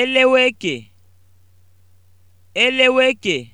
eleweke eleweke